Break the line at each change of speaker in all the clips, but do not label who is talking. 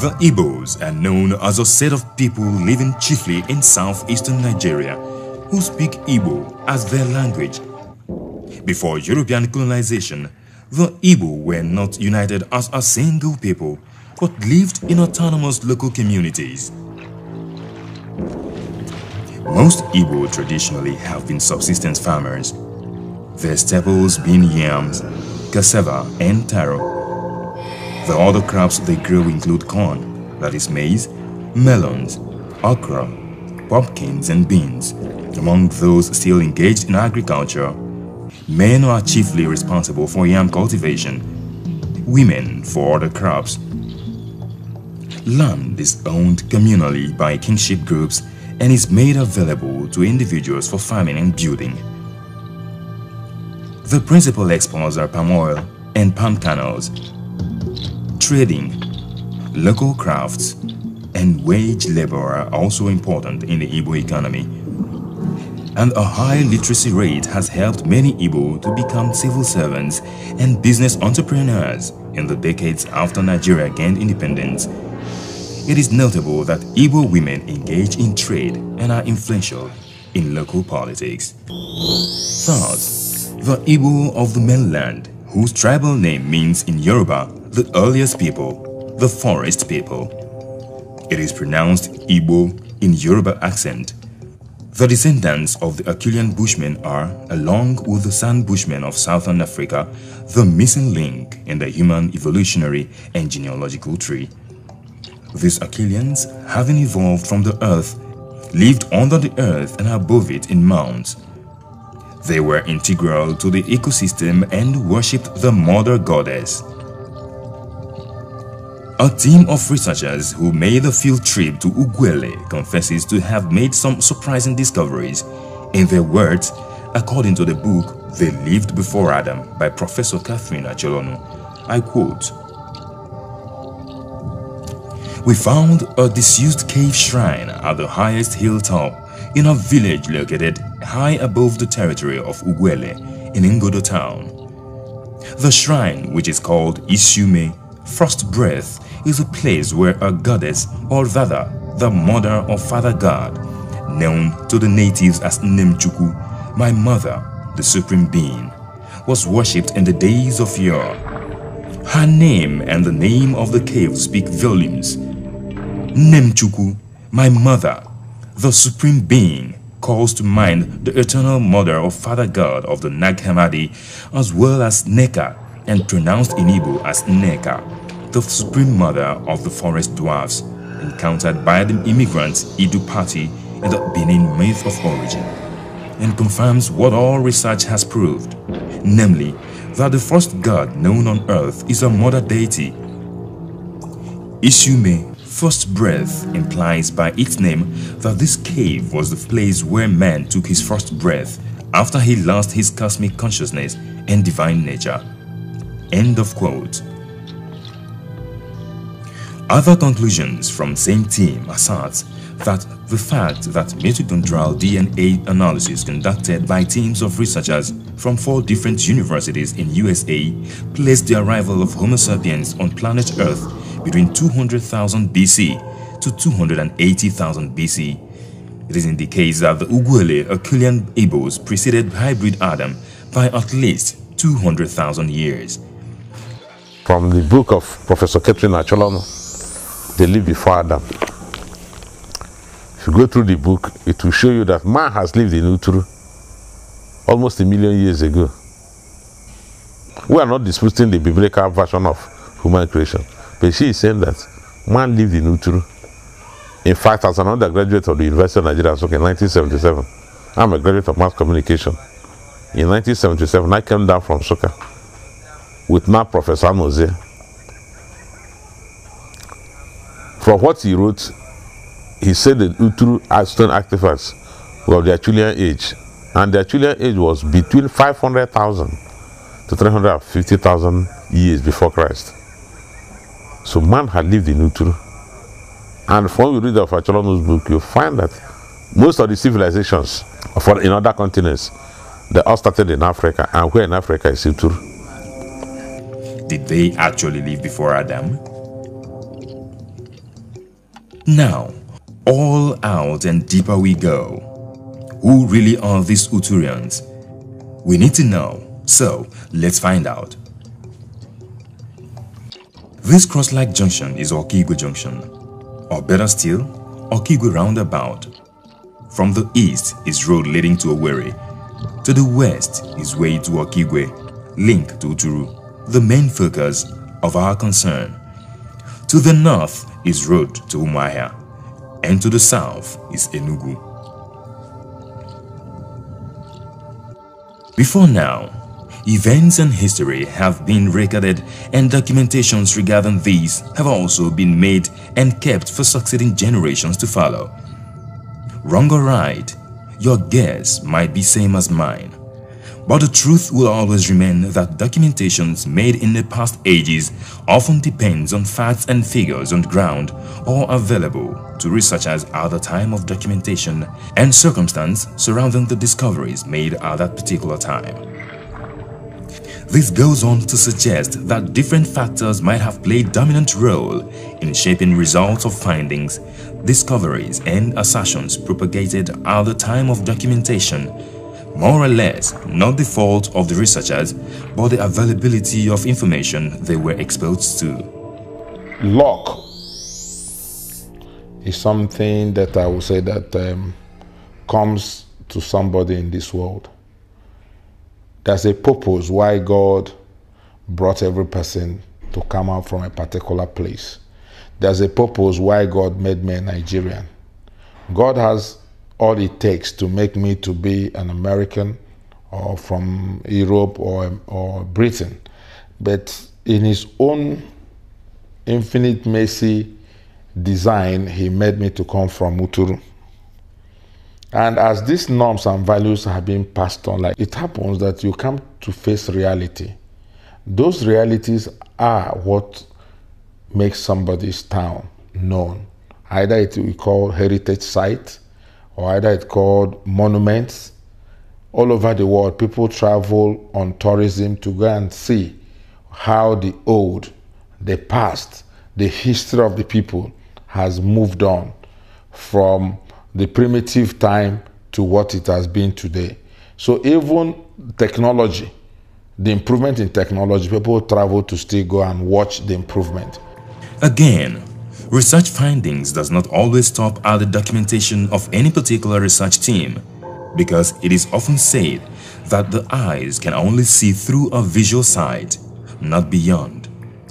The Igbos are known as a set of people living chiefly in southeastern Nigeria who speak Igbo as their language. Before European colonization, the Igbo were not united as a single people but lived in autonomous local communities. Most Igbo traditionally have been subsistence farmers, their staples being yams, cassava and taro. The other crops they grow include corn, that is maize, melons, okra, pumpkins and beans. Among those still engaged in agriculture, men are chiefly responsible for yam cultivation, women for other crops. Land is owned communally by kinship groups and is made available to individuals for farming and building. The principal exports are palm oil and palm kernels, trading, local crafts, and wage labor are also important in the Ibo economy. And a high literacy rate has helped many Ibo to become civil servants and business entrepreneurs in the decades after Nigeria gained independence. It is notable that Ibo women engage in trade and are influential in local politics. Third, the Ibo of the mainland, whose tribal name means in Yoruba the earliest people, the forest people. It is pronounced Igbo in Yoruba accent. The descendants of the Achillean Bushmen are, along with the San Bushmen of Southern Africa, the missing link in the human evolutionary and genealogical tree. These Achilleans, having evolved from the earth, lived under the earth and above it in mounds. They were integral to the ecosystem and worshipped the mother goddess. A team of researchers who made a field trip to Uguélé confesses to have made some surprising discoveries. In their words, according to the book They Lived Before Adam by Professor Catherine Achelonu, I quote, We found a disused cave shrine at the highest hilltop in a village located high above the territory of Uguélé in Ingodo town. The shrine, which is called Isume, Frost Breath, is a place where a goddess or rather the mother or father god, known to the natives as Nemchuku, my mother, the supreme being, was worshipped in the days of yore. Her name and the name of the cave speak volumes. Nemchuku, my mother, the supreme being, calls to mind the eternal mother or father god of the Nag Hammadi as well as Neka and pronounced in Igbo as Neka the supreme mother of the forest dwarfs, encountered by the immigrants Idu party in the Benin myth of origin, and confirms what all research has proved, namely that the first god known on earth is a mother deity. Isume, first breath, implies by its name that this cave was the place where man took his first breath after he lost his cosmic consciousness and divine nature. End of quote. Other conclusions from same team assert that the fact that mitochondrial DNA analysis conducted by teams of researchers from four different universities in USA placed the arrival of Homo sapiens on planet Earth between 200,000 BC to 280,000 BC. It is in the case that the Uguele Herculean Abos preceded hybrid Adam by at least 200,000 years. From the book of Professor Catherine Acholano,
they lived before Adam. If you go through the book, it will show you that man has lived in Uturu almost a million years ago. We are not disputing the biblical version of human creation, but she is saying that man lived in Uturu. In fact, as an undergraduate of the University of Nigeria, so in 1977, I'm a graduate of mass communication. In 1977, I came down from Soka with my Professor Mose For what he wrote, he said that Uturu Aston artifacts were of the Achillean age, and the Achillean age was between 500,000 to 350,000 years before Christ. So man had lived in Uturu. And from you read of Acholono's book, you find that most of the civilizations for, in other continents, they all started in Africa, and where in Africa is Uturu.
Did they actually live before Adam? Now, all out and deeper we go. Who really are these Uturians? We need to know, so let's find out. This cross-like junction is Okigwe Junction, or better still, Okigwe Roundabout. From the east is road leading to Owerri, to the west is way to Okigwe, link to Uturu, the main focus of our concern. To the north is road to Umuahia, and to the south is Enugu. Before now, events and history have been recorded and documentations regarding these have also been made and kept for succeeding generations to follow. Wrong or right, your guess might be same as mine. But the truth will always remain that documentations made in the past ages often depends on facts and figures on the ground or available to researchers at the time of documentation and circumstance surrounding the discoveries made at that particular time. This goes on to suggest that different factors might have played dominant role in shaping results of findings, discoveries and assertions propagated at the time of documentation more or less not the fault of the researchers, but the availability of information they were exposed to. Luck
is something that I would say that um, comes to somebody in this world. There's a purpose why God brought every person to come out from a particular place. There's a purpose why God made me a Nigerian. God has all it takes to make me to be an American or from Europe or, or Britain. But in his own infinite mercy design, he made me to come from Uturu. And as these norms and values have been passed on, like it happens that you come to face reality. Those realities are what makes somebody's town known. Either it we call heritage site, or either it's called monuments. All over the world, people travel on tourism to go and see how the old, the past, the history of the people has moved on from the primitive time to what it has been today. So even technology, the improvement in technology, people travel to still go and watch the improvement.
Again, Research findings does not always stop at the documentation of any particular research team because it is often said that the eyes can only see through a visual sight, not beyond.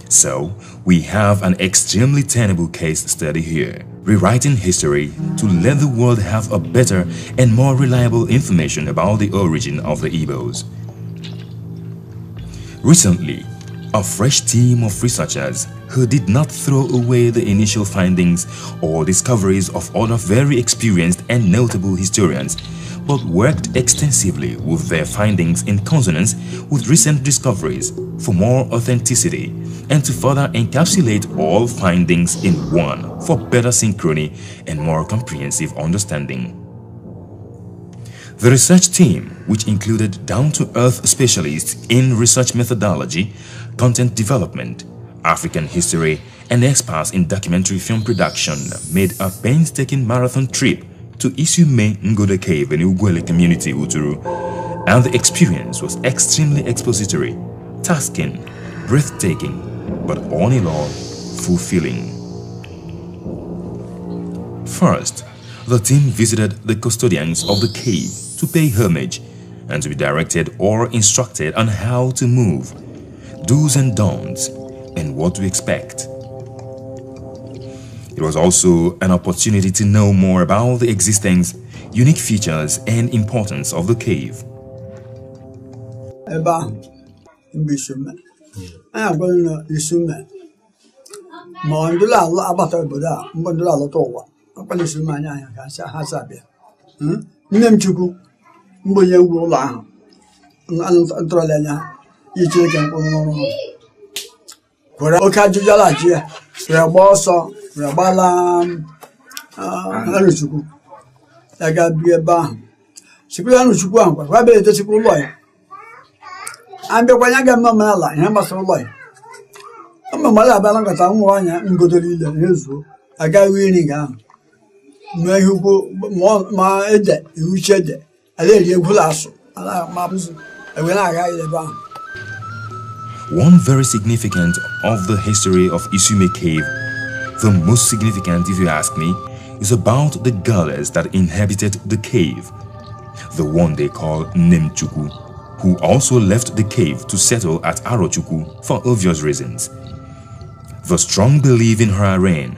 So, we have an extremely tenable case study here, rewriting history to let the world have a better and more reliable information about the origin of the Igbos. Recently, a fresh team of researchers who did not throw away the initial findings or discoveries of other very experienced and notable historians, but worked extensively with their findings in consonance with recent discoveries for more authenticity and to further encapsulate all findings in one for better synchrony and more comprehensive understanding. The research team, which included down-to-earth specialists in research methodology, content development, African history, and experts in documentary film production made a painstaking marathon trip to Isume Ngoda Cave in Ugwele community, Uturu, and the experience was extremely expository, tasking, breathtaking, but all in all, fulfilling. First, the team visited the custodians of the cave to pay homage and to be directed or instructed on how to move, do's and don'ts, and what to expect. It was also an opportunity to know more about the existence, unique features, and importance of the cave.
were oke ajụjụ alaghachi ya were gba ọsọ were gbala um, Aruchukwu ah, ya ga bi ebe ahụ sikwu ya Aruchukwu ahụ kwa kwa bere etosikwu ụlọ ya abịakwa ya ga eme omenala ihe gbasara ụlọ ya ụmụmala abịala nkata ụmụ nwaanyị ngodoro ile ha ezuo agaghị iri ga ahụ ma ihe ukwu ma ede iruchi ede ala eri egwula asụ ala ma bụzụ ewere agaghị ebe ahụ
One very significant of the history of Isume Cave, the most significant if you ask me, is about the goddess that inhabited the cave, the one they call Nimchuku, who also left the cave to settle at Arochuku for obvious reasons. The strong belief in her reign,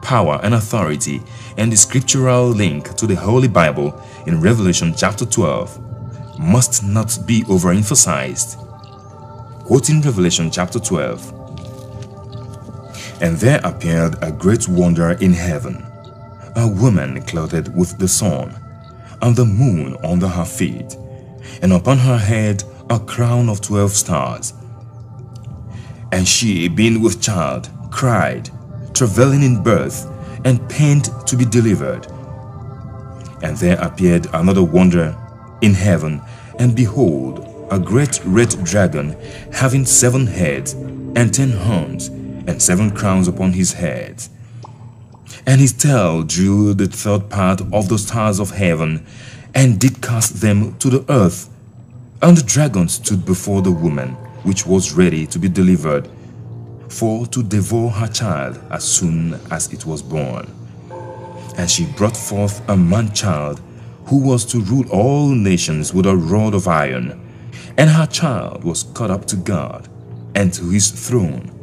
power and authority and the scriptural link to the Holy Bible in Revelation chapter 12 must not be overemphasized quoting Revelation chapter 12. And there appeared a great wonder in heaven, a woman clothed with the sun, and the moon under her feet, and upon her head a crown of twelve stars. And she, being with child, cried, travailing in birth, and pained to be delivered. And there appeared another wonder in heaven, and behold, a great red dragon having seven heads and ten horns and seven crowns upon his head. And his tail drew the third part of the stars of heaven and did cast them to the earth. And the dragon stood before the woman, which was ready to be delivered, for to devour her child as soon as it was born. And she brought forth a man-child who was to rule all nations with a rod of iron and her child was caught up to God and to his throne.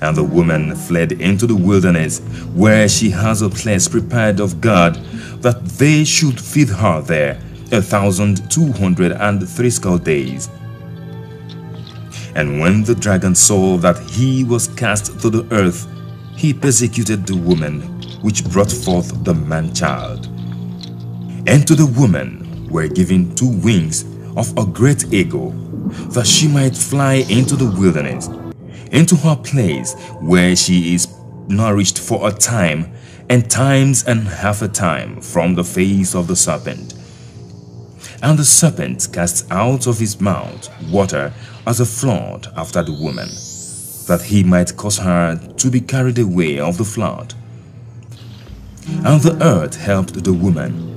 And the woman fled into the wilderness, where she has a place prepared of God, that they should feed her there a thousand two hundred and threescore days. And when the dragon saw that he was cast to the earth, he persecuted the woman which brought forth the man-child. And to the woman were given two wings of a great eagle, that she might fly into the wilderness, into her place where she is nourished for a time, and times and half a time from the face of the serpent. And the serpent cast out of his mouth water as a flood after the woman, that he might cause her to be carried away of the flood. And the earth helped the woman,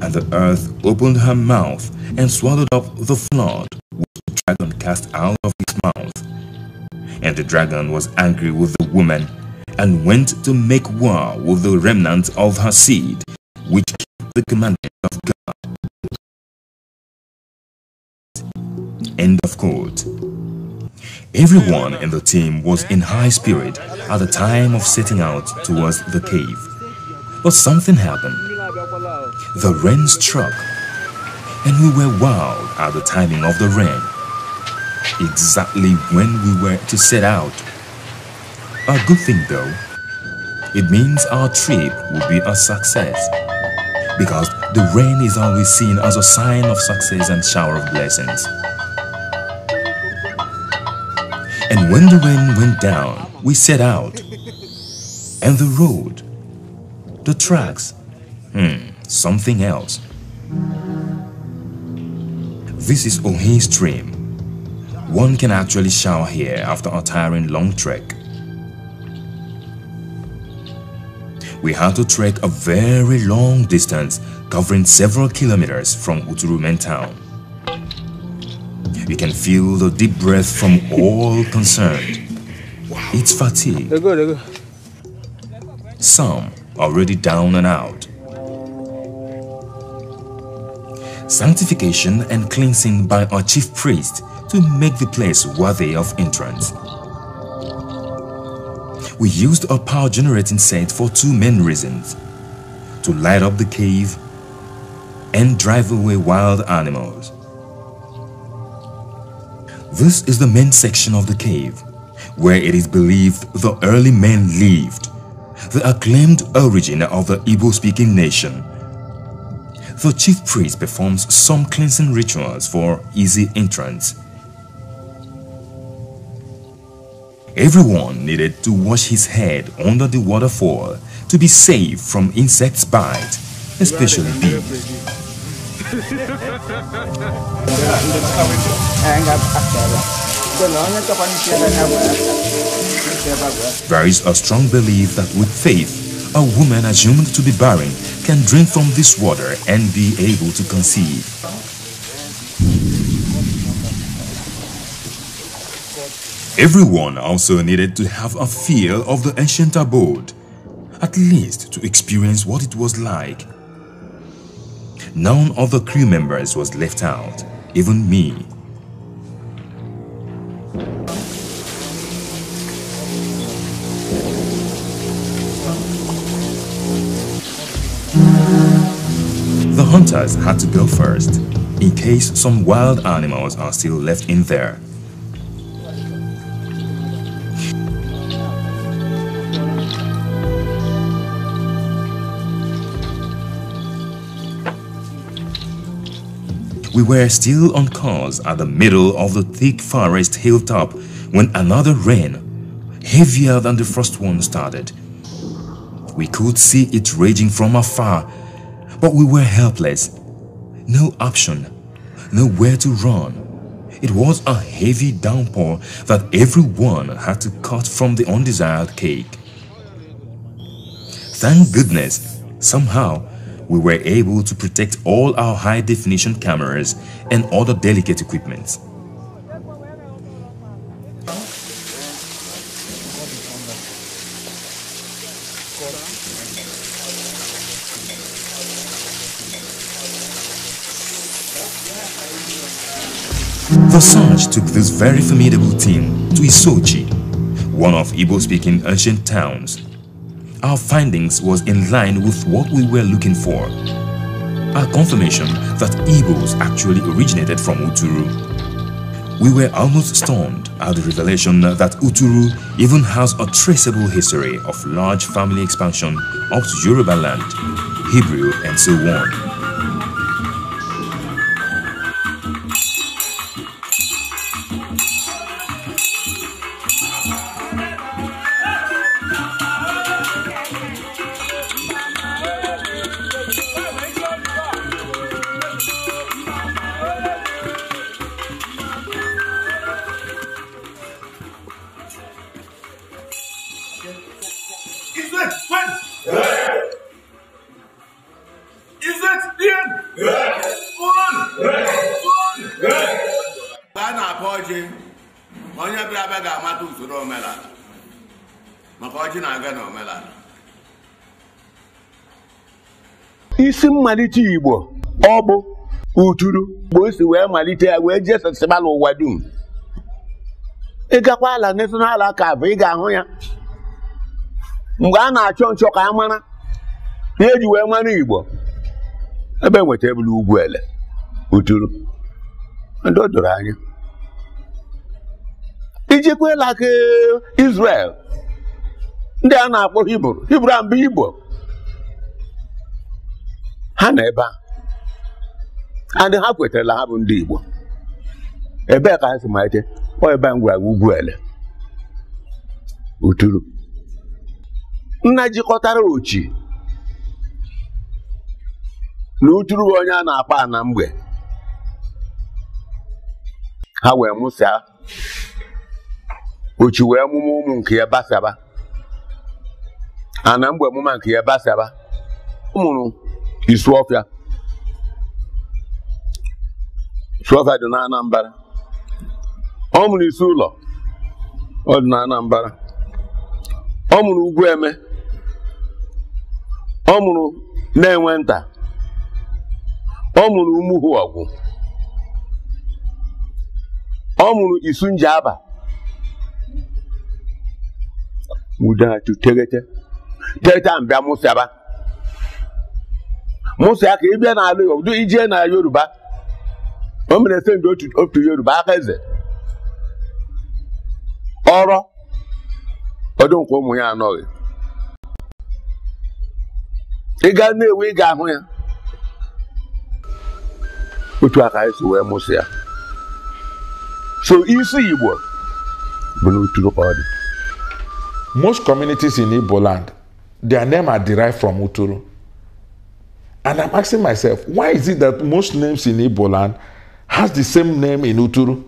and the earth opened her mouth and swallowed up the flood which the dragon cast out of his mouth. And the dragon was angry with the woman and went to make war with the remnant of her seed, which kept the commandment of God. End of quote. Everyone in the team was in high spirit at the time of setting out towards the cave. But something happened the rain struck, and we were wild at the timing of the rain, exactly when we were to set out. A good thing though, it means our trip will be a success, because the rain is always seen as a sign of success and shower of blessings. And when the rain went down, we set out. And the road, the tracks, hmm something else. This is Ohi Stream. One can actually shower here after a tiring long trek. We had to trek a very long distance covering several kilometers from Uturumen town. You can feel the deep breath from all concerned. It's fatigue. Some already down and out. sanctification and cleansing by our chief priest to make the place worthy of entrance. We used our power generating set for two main reasons to light up the cave and drive away wild animals. This is the main section of the cave where it is believed the early men lived, the acclaimed origin of the Igbo speaking nation the chief priest performs some cleansing rituals for easy entrance. Everyone needed to wash his head under the waterfall to be safe from insects' bite,
especially bees.
there is a strong belief that with faith, a woman assumed to be barren can drink from this water and be able to conceive. Everyone also needed to have a feel of the ancient abode, at least to experience what it was like. None of the crew members was left out, even me. The hunters had to go first, in case some wild animals are still left in there. We were still on course at the middle of the thick forest hilltop when another rain, heavier than the first one, started. We could see it raging from afar but we were helpless. No option. Nowhere to run. It was a heavy downpour that everyone had to cut from the undesired cake. Thank goodness, somehow, we were able to protect all our high-definition cameras and other delicate equipment. Gossage took this very formidable team to Isochi, one of Igbo-speaking ancient towns. Our findings was in line with what we were looking for. Our confirmation that Igbos actually originated from Uturu. We were almost stunned at the revelation that Uturu even has a traceable history of large family expansion up to Yoruba land, Hebrew and so on.
mmalite Igbo ọ bụ uturu Igbo si wee malite ya wee jee sasịba ụwa dum ịgakwa ala national aka bụ ị ga-ahụ ya mgbe a na-achọ nchọ ka a mara na eji wee mara Igbo ebe e nweta ebulu ugwu ele uturu ndị o doro anya ijekwela aka Izrel, ndị a na-akpọ hibru hibru a Igbo ha na ebe a and ha kwetarala ha bụ ndị Igbo ebee ka ha si malite ọ ebe a m gwara ugwu ele uturu nna jikọtara ochi na uturu onye a na-akpa na mgbe ha wee mụsịa ochi wee mụmụ ụmụ nke ya basaba ana mgbe mụma nke ya basaba ọ mụrụ Isu ọfịa ọfịa dị na Anambra ọ mụrụ isi ụlọ ọ dị na Anambra ọ mụrụ eme ọ mụrụ na-enwe nta ọ mụrụ Umuhuogwu ọ mụrụ isu ude a tu tegete tegete a mbịa mụsịaba mụsụ aka ịbịa n'ala Igbo ijee na Yoruba o mere se otu otu Yoruba aka eze ọrọ nke ụmụ ya anọghị ịga Nnewi ị ga-ahụ ya
otu aka esi wee mụsụ ya so isi Igbo bụ n'otu ọ dị most communities in Igbo land their name are derived from Uturu And I'm asking myself, why is it that most names in Igbo land has the same name in Uturu?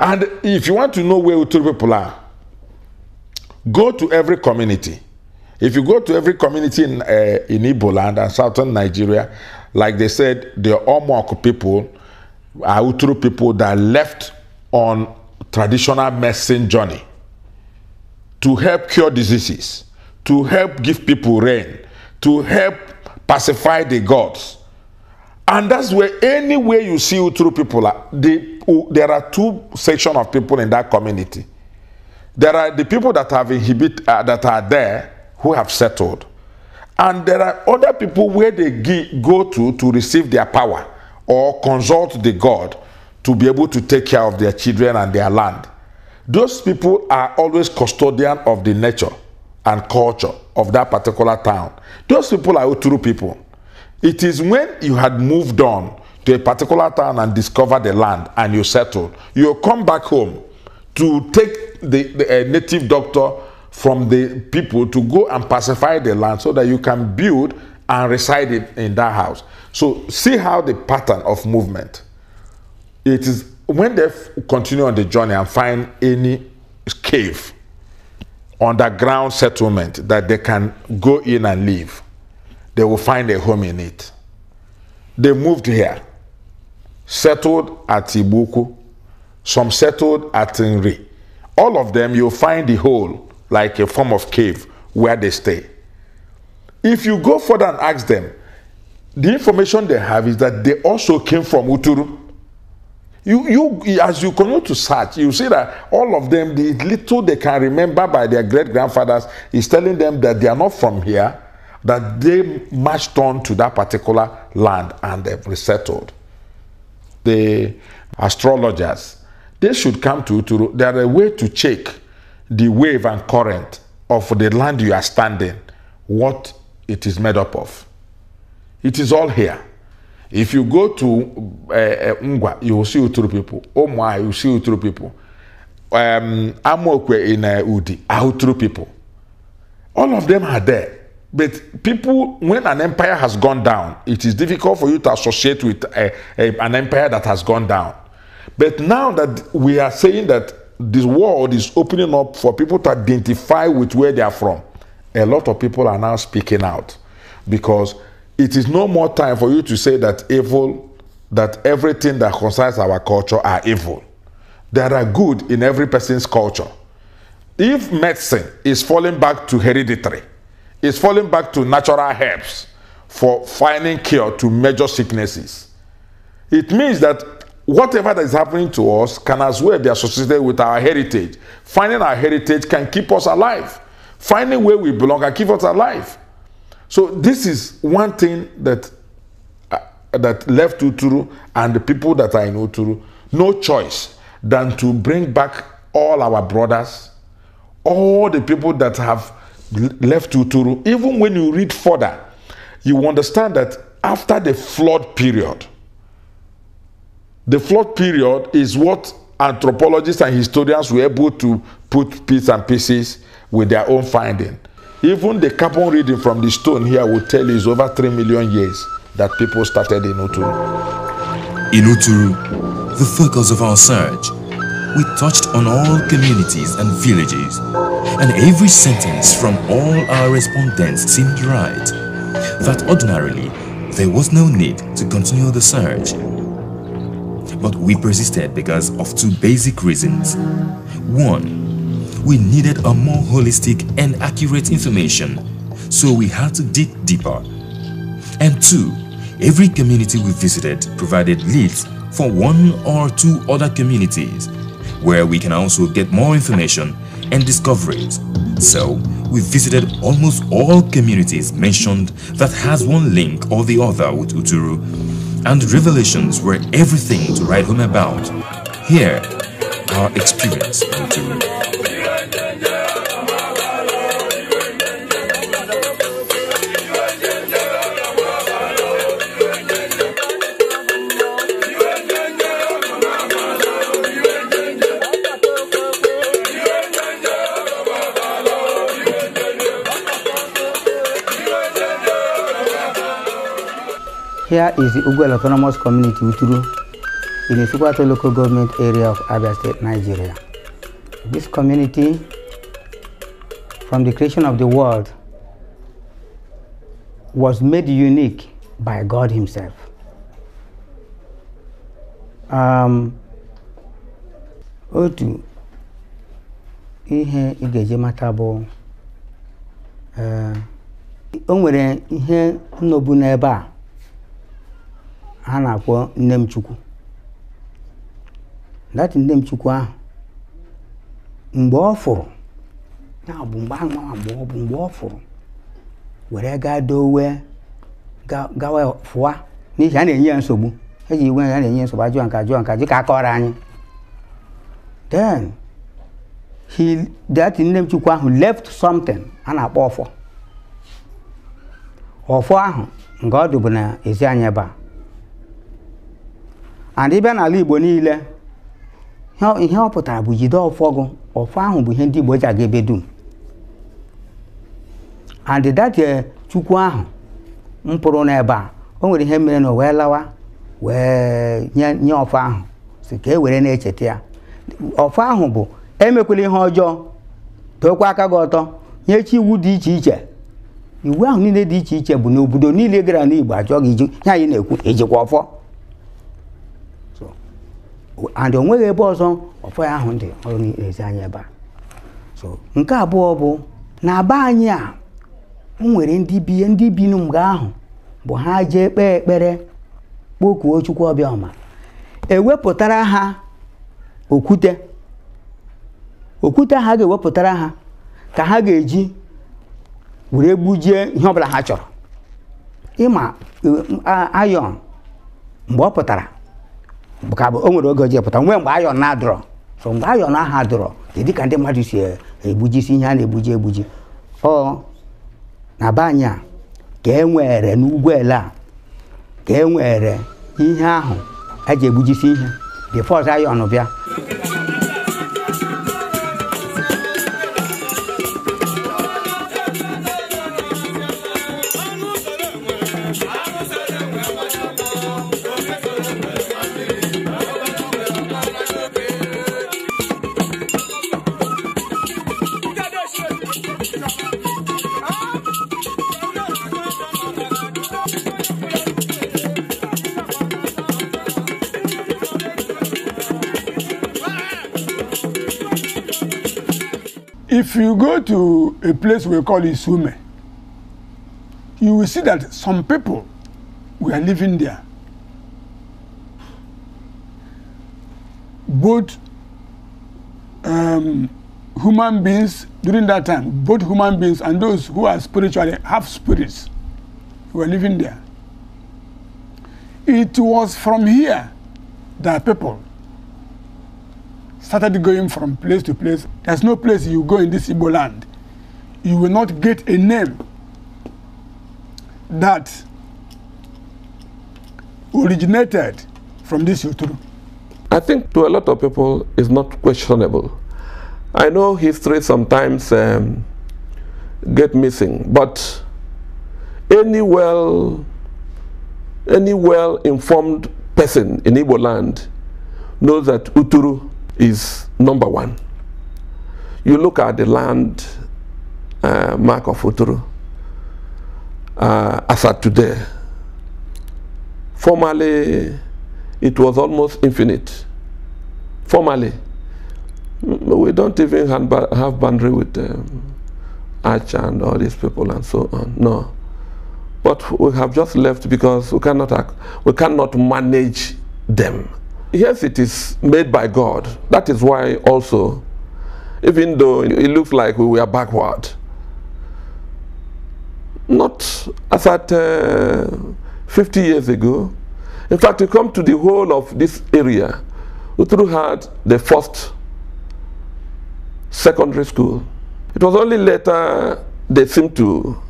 And if you want to know where Uturu people are, go to every community. If you go to every community in, uh, in Igbo land and southern Nigeria, like they said, the Omok people are Uturu people that left on traditional medicine journey to help cure diseases. to help give people rain, to help pacify the gods. And that's where any way you see Uturu people are. Oh, there are two sections of people in that community. There are the people that have inhibit uh, that are there who have settled, and there are other people where they go to to receive their power or consult the god to be able to take care of their children and their land. Those people are always custodian of the nature and culture of that particular town. Those people are Uturu people. It is when you had moved on to a particular town and discovered the land and you settled, you come back home to take the, the uh, native doctor from the people to go and pacify the land so that you can build and reside in, in that house. So see how the pattern of movement. It is when they continue on the journey and find any cave underground settlement that they can go in and live. They will find a home in it. They moved here, settled at Ibuku, some settled at Nri. All of them, you'll find the hole like a form of cave where they stay. If you go further and ask them, the information they have is that they also came from Uturu. you you as you continue to search you see that all of them the little they can remember by their great grandfathers is telling them that they are not from here that they marched on to that particular land and they've resettled the astrologers they should come to to there are a way to check the wave and current of the land you are standing what it is made up of it is all here If you go to uh, uh, you will see Uturu people. Omwa, ah, you see Uturu people. Um, Amokwe eh, in uh, Udi are ah, Uturu people. All of them are there. But people, when an empire has gone down, it is difficult for you to associate with a, a, an empire that has gone down. But now that we are saying that this world is opening up for people to identify with where they are from, a lot of people are now speaking out because it is no more time for you to say that evil, that everything that concerns our culture are evil. There are good in every person's culture. If medicine is falling back to hereditary, it's falling back to natural herbs for finding cure to major sicknesses, it means that whatever that is happening to us can as well be associated with our heritage. Finding our heritage can keep us alive. Finding where we belong can keep us alive. So this is one thing that uh, that left Uturu and the people that are in Uturu no choice than to bring back all our brothers, all the people that have left Uturu. Even when you read further, you understand that after the flood period, the flood period is what anthropologists and historians were able to put bits and pieces with their own finding Even the carbon reading from the stone here will tell you it's over
3 million years that people started in Uturu. In Uturu, the focus of our search, we touched on all communities and villages, and every sentence from all our respondents seemed right, that ordinarily there was no need to continue the search. But we persisted because of two basic reasons. One, we needed a more holistic and accurate information, so we had to dig deeper. And two, every community we visited provided leads for one or two other communities, where we can also get more information and discoveries. So, we visited almost all communities mentioned that has one link or the other with Uturu, and revelations were everything to write home about. Here, our experience with Uturu.
Here is the Uguel Autonomous Community Uturu in the Subato local government area of Abia State, Nigeria. This community, from the creation of the world, was made unique by God Himself. Um, otu ihe ị ga-eji mata bụ uh, o nwere ihe nnọbu n'ebe a ha na-akpọ nne m chukwu dati nne m chukwu ahụ mgbe ọ fụrụ na bụ mgbe ahụ nwa mgbe ọ bụ mgbe ọ fụrụ were gaa dowe gawa fụwa n'ihi a na-enye ya nsogbu eji iwe ya na-enye nsogbu ajụọ nka ajụọ nka ji ka a anyị then he that nne m chukwu ahụ left something a na-akpọ ọfọ ọfọ ahụ nke ọ dụbụ n'ezi anyị ebe a adịbịa n'ala Igbo niile ihe ọ pụtara bụ jide ọfọ gụ ọfọ ahụ bụ ihe ndị Igbo ji aga ebe dum adịdatie eh, chukwu ahụ mpụrụ n'ebe a o nwere ihe mere na o wee lawa wee nye ọfọ ahụ si ka e were na-echeta ya ọfọ ahụ bụ emekwela ihe ọjọọ dokwa aka gị ọtọ nye chi iwu dị iche iche iwu ahụ niile dị iche iche bụ na obodo niile gara n'Igbo ajọ gị iju anyị na-ekwu ijikwa ọfọ and o ebe ọzọ ọfọ ahụ dị ọrụ na-ezi anyị ebe a so nke abụọ bụ na be anyị a o nwere ndị bi ndị n'mgbe ahụ bụ ha jee kpee ekpere kpokuo Chukwu ọma. ewepụtara ha okwute okwute ha ga-ewepụtara ha ka ha ga-eji were gbujie ihe ọbụla ha chọrọ ịma e, ayọn mgbe ọ pụtara ka o nwere oge ji pụta nwe mgbe ayọn na-adọrọ so mgbe ayọn ahụ adọrọ dị ka ndị mmadụ si egbujisi ihe a na-egbuji egbuji ọ na be anyị a ka e nwere n'ugwu ele a ka e nwere ihe ahụ eji egbujisi ihe bifo ọzọ ayọn bịa
you go to a place we call Isume, you will see that some people were living there.
Both um, human beings during that time, both human beings and those who are spiritually have spirits were living
there. It was from here that people started going from place to place. There's no place you go in this Igbo land. You will not get a name that originated from this Uturu.
I think to a lot of people it's not questionable. I know history sometimes um, get missing, but any well any well-informed person in Igbo land knows that Uturu is number one. You look at the land uh, mark of Uturu uh, as at today. Formerly, it was almost infinite. Formerly, mm, we don't even have boundary with um, Arch and all these people and so on. No. But we have just left because we cannot, we cannot manage them yes, it is made by God. That is why also, even though it looks like we were backward, not as at uh, 50 years ago. In fact, you come to the whole of this area, through had the first secondary school. It was only later they seemed to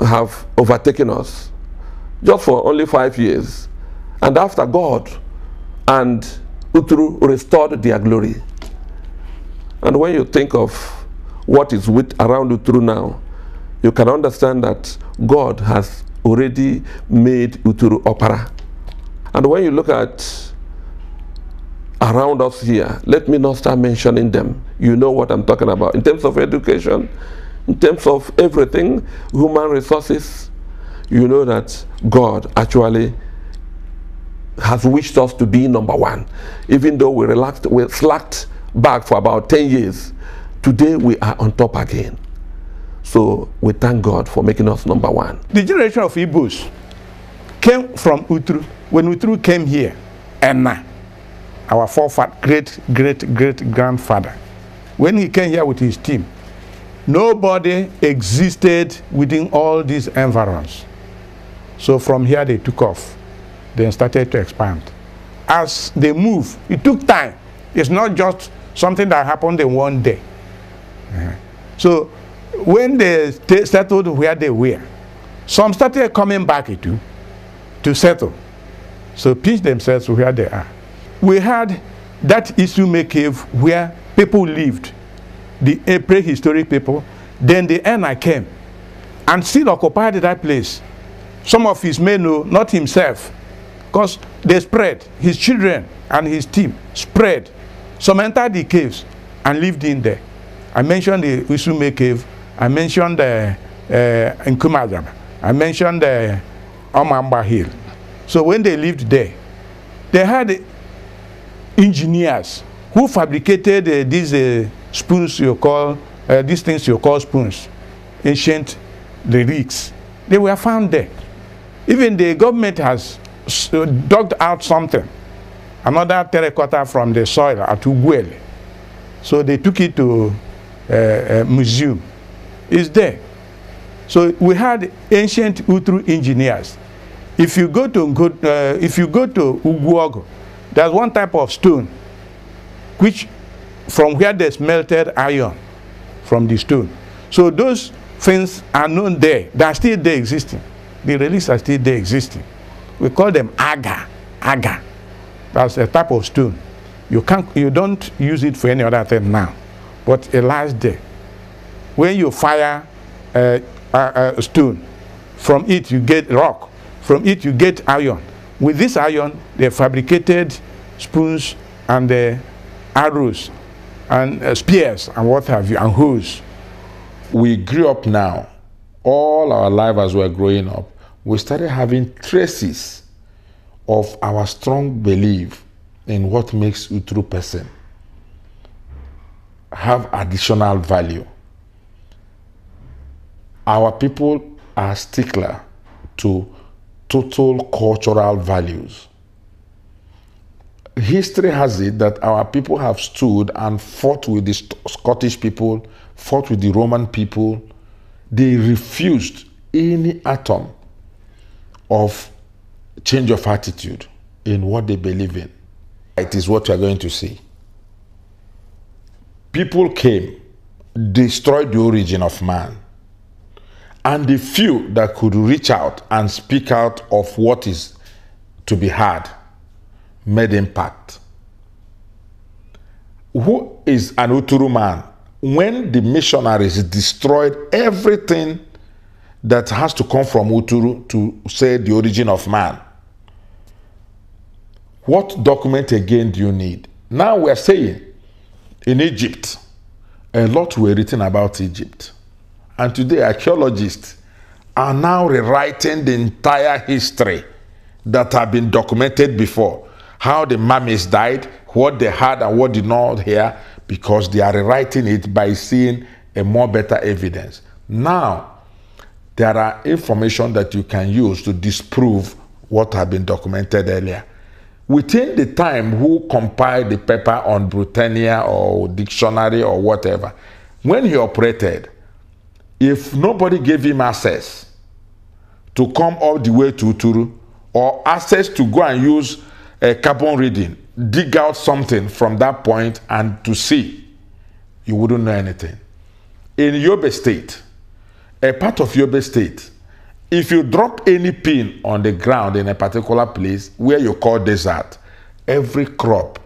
have overtaken us, just for only five years. And after God, and Uthru restored their glory. And when you think of what is with around Uthru now, you can understand that God has already made Uthru opera. And when you look at around us here, let me not start mentioning them. You know what I'm talking about. In terms of education, in terms of everything, human resources, you know that God actually has wished us to be number one. Even though we relaxed, we slacked back for about 10 years, today we are on top again. So we thank God for making us number one.
The generation of Igbos came from Utru. When Utru came here, Enna, our forefather, great, great, great grandfather, when he came here with his team, nobody existed within all these environs. So from here they took off then started to expand. As they move, it took time. It's not just something that happened in one day. Uh-huh. So when they settled where they were, some started coming back to, to settle. So pitch themselves where they are. We had that Isume cave where people lived, the eh, prehistoric people. Then the Ena came and still occupied that place. Some of his men, not himself, Because they spread, his children and his team spread. Some entered the caves and lived in there. I mentioned the Usume cave. I mentioned the uh, uh, Nkumadam. I mentioned the uh, Omamba Hill. So when they lived there, they had engineers who fabricated uh, these uh, spoons you call, uh, these things you call spoons, ancient lyrics. They were found there. Even the government has so dug out something, another terracotta from the soil at Uguel. So they took it to a, eh, a eh, museum. It's there. So we had ancient Utru engineers. If you go to uh, if you go to Uguogo, there's one type of stone which from where they smelted iron from the stone. So those things are known there. They're still there existing. The relics are still there existing. We call them agar. Agar. That's a type of stone. You, can't, you don't use it for any other thing now. But a last day, when you fire a, a, a stone, from it you get rock. From it you get iron. With this iron, they fabricated spoons and the uh, arrows and uh, spears and what have you, and hoes.
We grew up now. All our life as we're growing up, we started having traces of our strong belief in what makes a true person have additional value. Our people are stickler to total cultural values. History has it that our people have stood and fought with the Scottish people, fought with the Roman people. They refused any atom of change of attitude in what they believe in. It is what you are going to see. People came, destroyed the origin of man. And the few that could reach out and speak out of what is to be had made impact. Who is an Uturu man? When the missionaries destroyed everything that has to come from Uturu to say the origin of man. What document again do you need? Now we're saying in Egypt, a lot were written about Egypt. And today, archaeologists are now rewriting the entire history that have been documented before. How the mummies died, what they had, and what did not hear, because they are rewriting it by seeing a more better evidence. Now, there are information that you can use to disprove what had been documented earlier. Within the time who compiled the paper on Britannia or dictionary or whatever, when he operated, if nobody gave him access to come all the way to Uturu or access to go and use a carbon reading, dig out something from that point and to see, you wouldn't know anything. In Yobe State, a part of Yobe State, if you drop any pin on the ground in a particular place where you call desert, every crop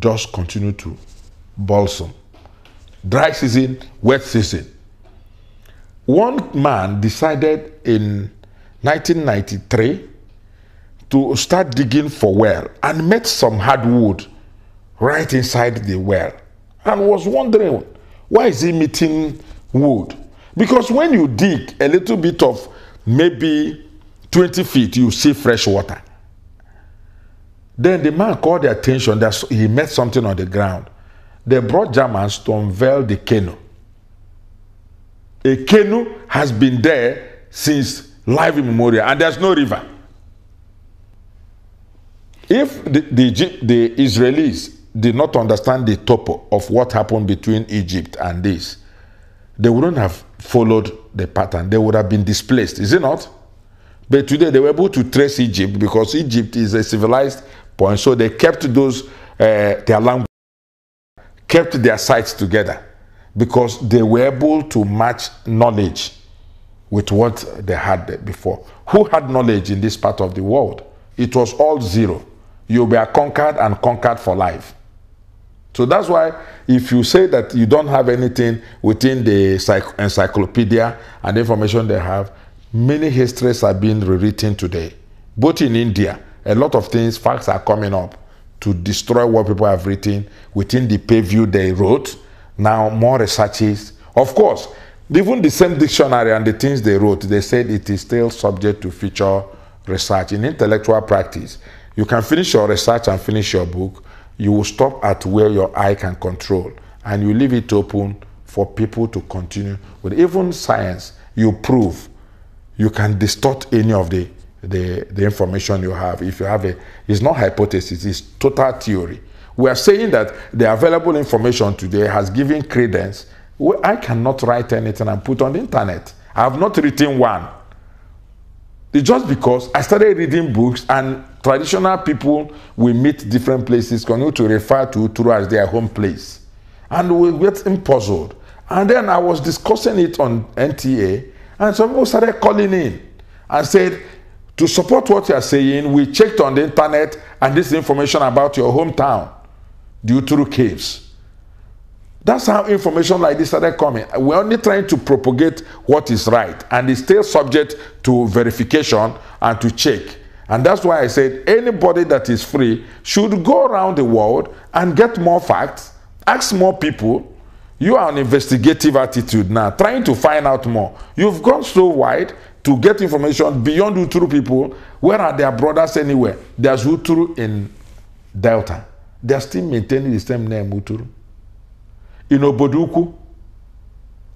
just continue to balsam. Dry season, wet season. One man decided in 1993 to start digging for well and met some hardwood right inside the well and was wondering why is he meeting wood because when you dig a little bit of maybe 20 feet, you see fresh water. Then the man called the attention that he met something on the ground. They brought Germans to unveil the canoe. A canoe has been there since life immemorial, and there's no river. If the, the, the Israelis did not understand the topo of what happened between Egypt and this, they wouldn't have followed the pattern, they would have been displaced, is it not? But today they were able to trace Egypt because Egypt is a civilized point, so they kept those uh, their language, kept their sites together because they were able to match knowledge with what they had before. Who had knowledge in this part of the world? It was all zero. You were conquered and conquered for life. So that's why if you say that you don't have anything within the encyclopedia and information they have, many histories are being rewritten today. Both in India, a lot of things, facts are coming up to destroy what people have written within the purview they wrote. Now more researches. Of course, even the same dictionary and the things they wrote, they said it is still subject to future research. In intellectual practice, you can finish your research and finish your book you will stop at where your eye can control and you leave it open for people to continue with even science you prove you can distort any of the the, the information you have if you have a it's not hypothesis it's total theory we are saying that the available information today has given credence well, i cannot write anything and put on the internet i have not written one it's just because i started reading books and Traditional people we meet different places continue to refer to Uturu as their home place. And we get puzzled. And then I was discussing it on NTA, and some people started calling in and said, to support what you are saying, we checked on the internet and this information about your hometown, the Uturu Caves. That's how information like this started coming. We're only trying to propagate what is right, and it's still subject to verification and to check. And that's why I said anybody that is free should go around the world and get more facts, ask more people. You are an investigative attitude now, trying to find out more. You've gone so wide to get information beyond Uturu people. Where are their brothers anywhere? There's Uturu in Delta. They're still maintaining the same name, Uturu. In Oboduku,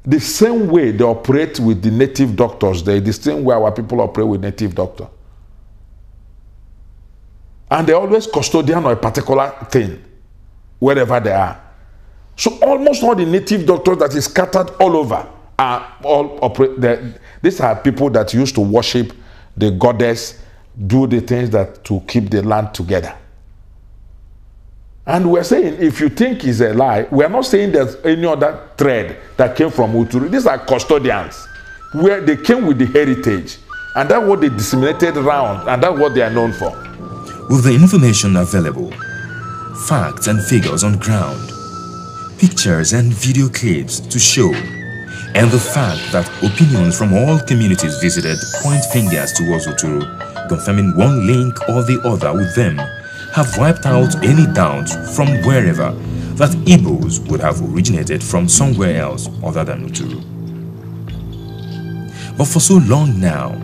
the same way they operate with the native doctors They the same way our people operate with native doctors. and they're always custodian of a particular thing wherever they are. So almost all the native doctors that is scattered all over are all operate. These are people that used to worship the goddess, do the things that to keep the land together. And we're saying if you think it's a lie, we're not saying there's any other thread that came from Uturu. These are custodians where they came with the heritage, and that's what they disseminated
around, and that's what they are known for. with the information available, facts and figures on ground, pictures and video clips to show, and the fact that opinions from all communities visited point fingers towards Oturu, confirming one link or the other with them, have wiped out any doubt from wherever that Igbos would have originated from somewhere else other than Uturu. But for so long now,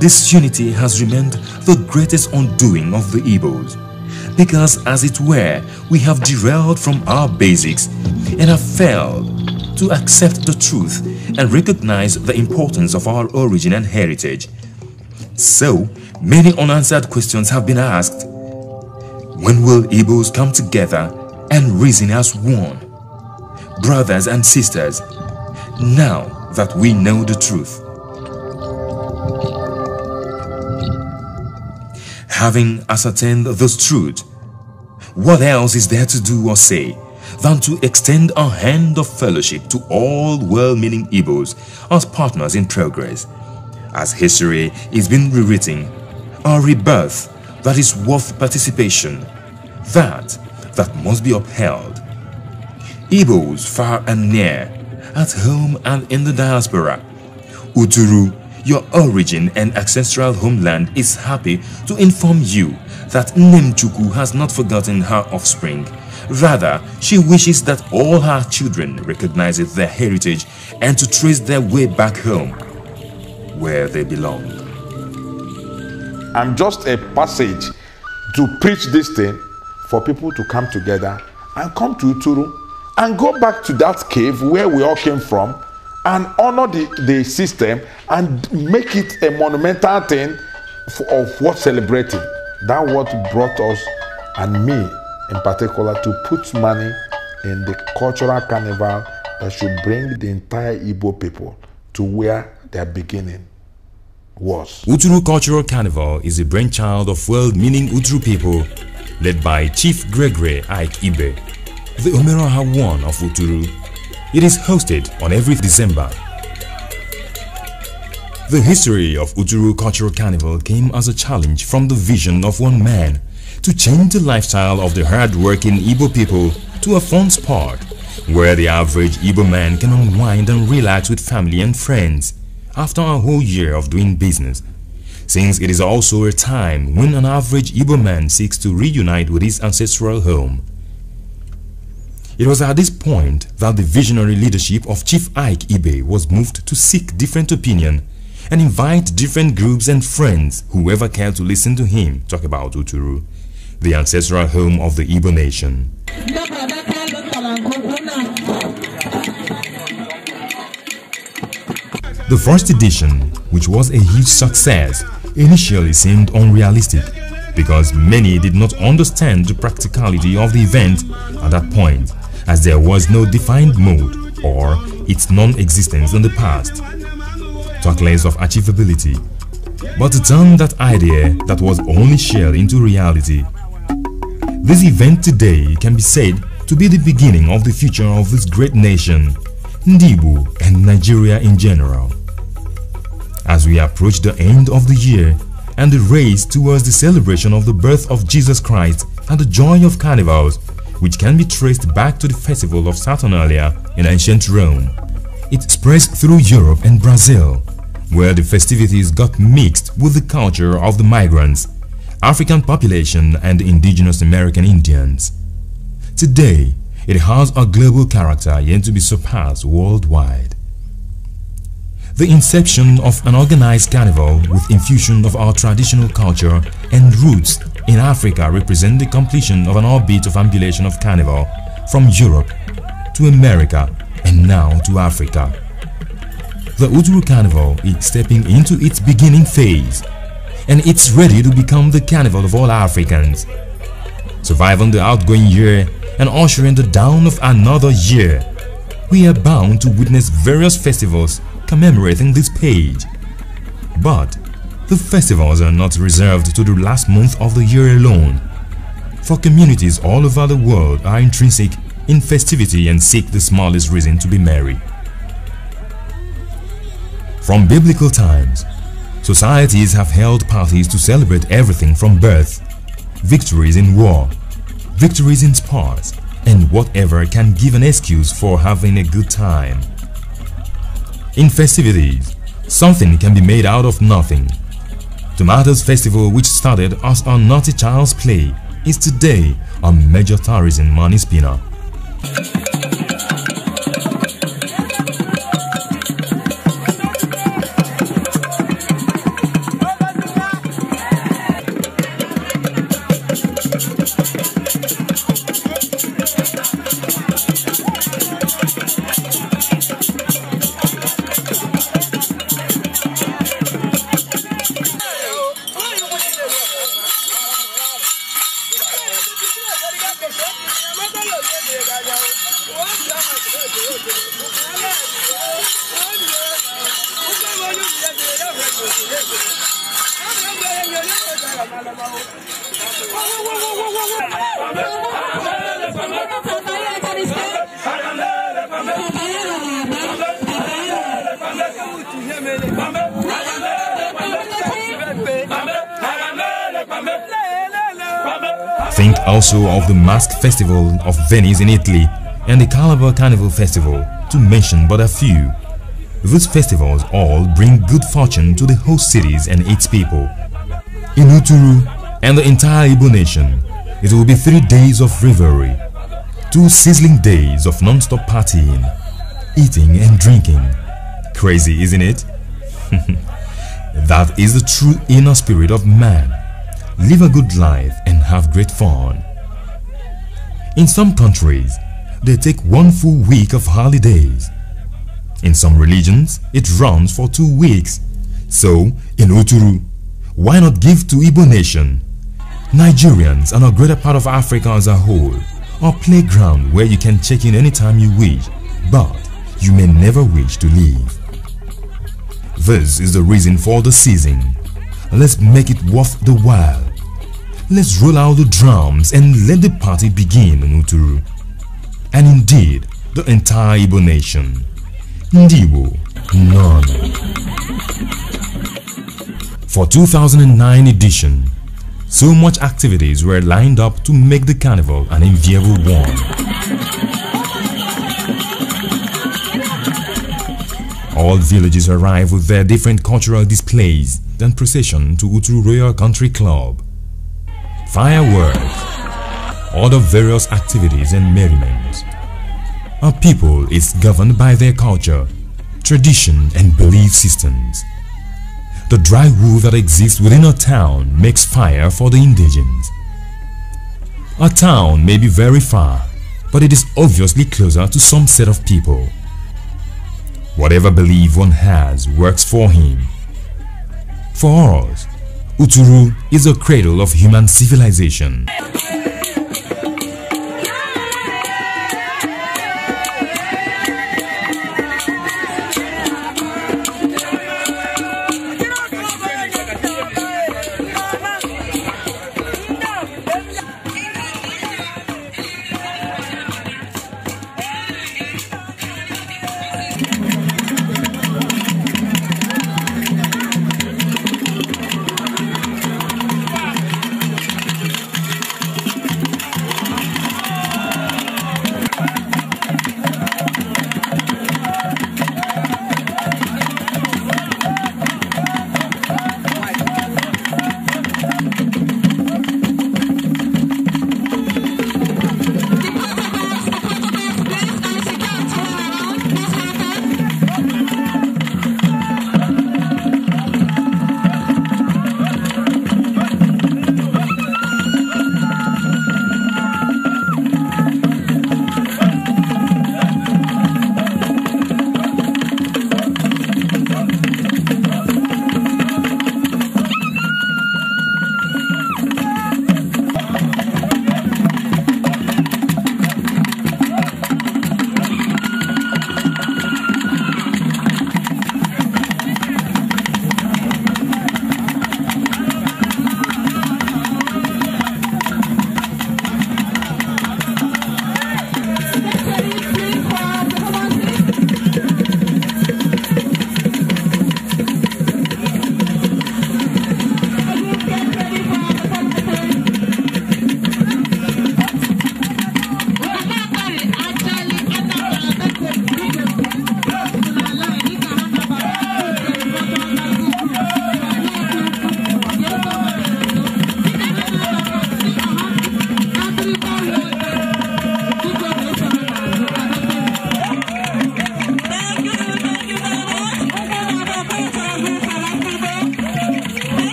this unity has remained the greatest undoing of the evils. Because as it were, we have derailed from our basics and have failed to accept the truth and recognize the importance of our origin and heritage. So, many unanswered questions have been asked. When will Igbos come together and reason as one? Brothers and sisters, now that we know the truth, Having ascertained this truth, what else is there to do or say than to extend a hand of fellowship to all well-meaning Igbos as partners in progress, as history is being rewritten, a rebirth that is worth participation, that that must be upheld. Igbos far and near, at home and in the diaspora, Uturu your origin and ancestral homeland is happy to inform you that Nemchuku has not forgotten her offspring. Rather, she wishes that all her children recognize their heritage and to trace their way back home, where they belong.
I'm just a passage to preach this thing for people to come together and come to Uturu and go back to that cave where we all came from and honor the, the system and make it a monumental thing for, of what celebrating. That what brought us and me in particular to put money in the cultural carnival that should bring the entire Igbo people to where their beginning was.
Uturu Cultural Carnival is a brainchild of well-meaning Uturu people led by Chief Gregory Ike Ibe, the Ha one of Uturu. It is hosted on every December. The history of Ujuru Cultural Carnival came as a challenge from the vision of one man to change the lifestyle of the hard-working Igbo people to a fun spot where the average Igbo man can unwind and relax with family and friends after a whole year of doing business. Since it is also a time when an average Igbo man seeks to reunite with his ancestral home. It was at this point that the visionary leadership of Chief Ike Ibe was moved to seek different opinion and invite different groups and friends whoever cared to listen to him talk about Uturu, the ancestral home of the Igbo nation. The first edition, which was a huge success, initially seemed unrealistic because many did not understand the practicality of the event at that point as there was no defined mode or its non-existence in the past. Talkless of achievability, but to turn that idea that was only shared into reality. This event today can be said to be the beginning of the future of this great nation, Ndibu and Nigeria in general. As we approach the end of the year and the race towards the celebration of the birth of Jesus Christ and the joy of carnivals which can be traced back to the festival of Saturnalia in ancient Rome. It spreads through Europe and Brazil, where the festivities got mixed with the culture of the migrants, African population and indigenous American Indians. Today, it has a global character yet to be surpassed worldwide. The inception of an organized carnival with infusion of our traditional culture and roots in Africa represent the completion of an orbit of ambulation of carnival from Europe to America and now to Africa. The Udru Carnival is stepping into its beginning phase and it's ready to become the carnival of all Africans. Surviving the outgoing year and ushering the dawn of another year, we are bound to witness various festivals commemorating this page. But the festivals are not reserved to the last month of the year alone, for communities all over the world are intrinsic in festivity and seek the smallest reason to be merry. From biblical times, societies have held parties to celebrate everything from birth, victories in war, victories in sports, and whatever can give an excuse for having a good time. In festivities, something can be made out of nothing. Tomatoes Festival which started as a naughty child's play is today a major tourism money spinner. Festival of Venice in Italy and the Calabar Carnival Festival, to mention but a few. These festivals all bring good fortune to the host cities and its people. In Uturu and the entire Igbo nation, it will be three days of revelry, two sizzling days of non-stop partying, eating and drinking. Crazy, isn't it? that is the true inner spirit of man. Live a good life and have great fun. In some countries, they take one full week of holidays. In some religions, it runs for two weeks. So, in Uturu, why not give to Igbo nation? Nigerians and a greater part of Africa as a whole a playground where you can check in anytime you wish, but you may never wish to leave. This is the reason for the season. Let's make it worth the while let's roll out the drums and let the party begin on Uturu. And indeed, the entire Igbo nation. Ndibo, none. For 2009 edition, so much activities were lined up to make the carnival an enviable one. All villages arrive with their different cultural displays then procession to Uturu Royal Country Club fireworks, other various activities and merriments. A people is governed by their culture, tradition and belief systems. The dry wood that exists within a town makes fire for the indigents. A town may be very far, but it is obviously closer to some set of people. Whatever belief one has works for him. For us, Uturu is a cradle of human civilization.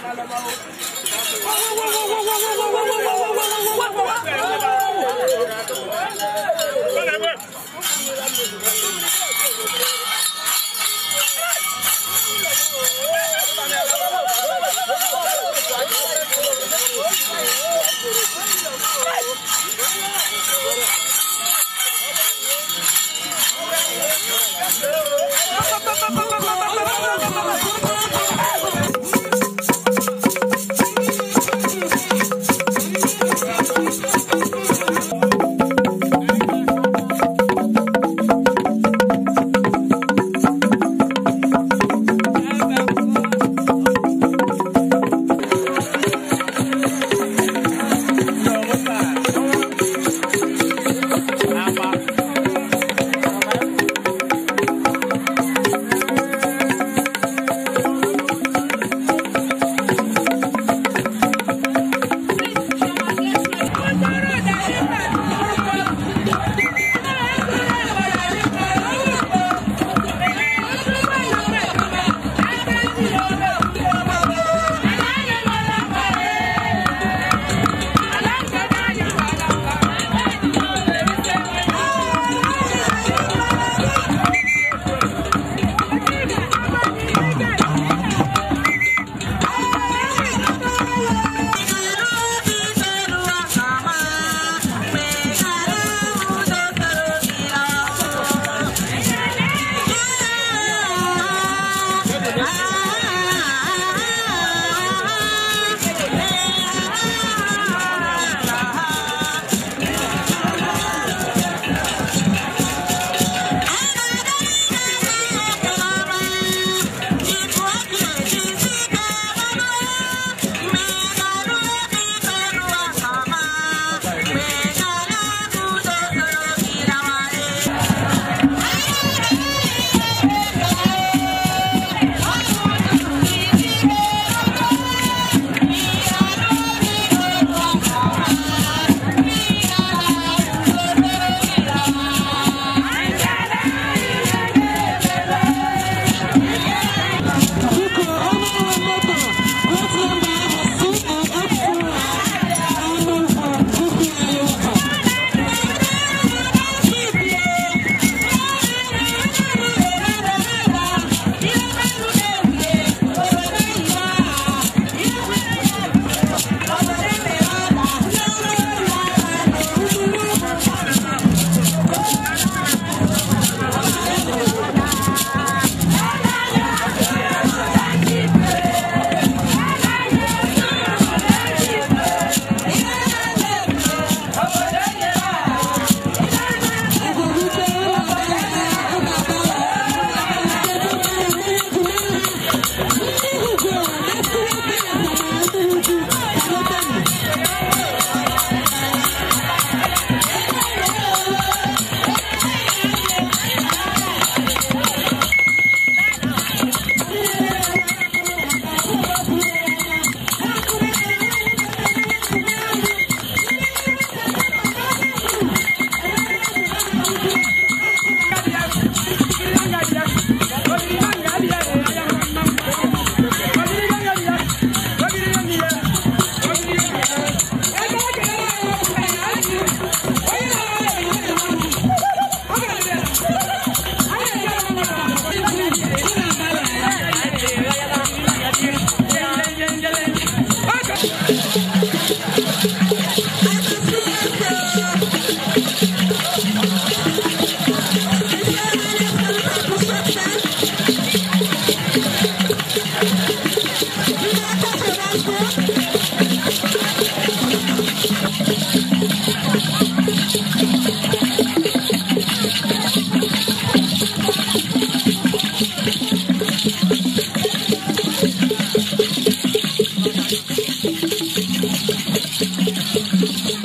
Whoa, whoa, whoa, whoa, whoa, whoa, whoa.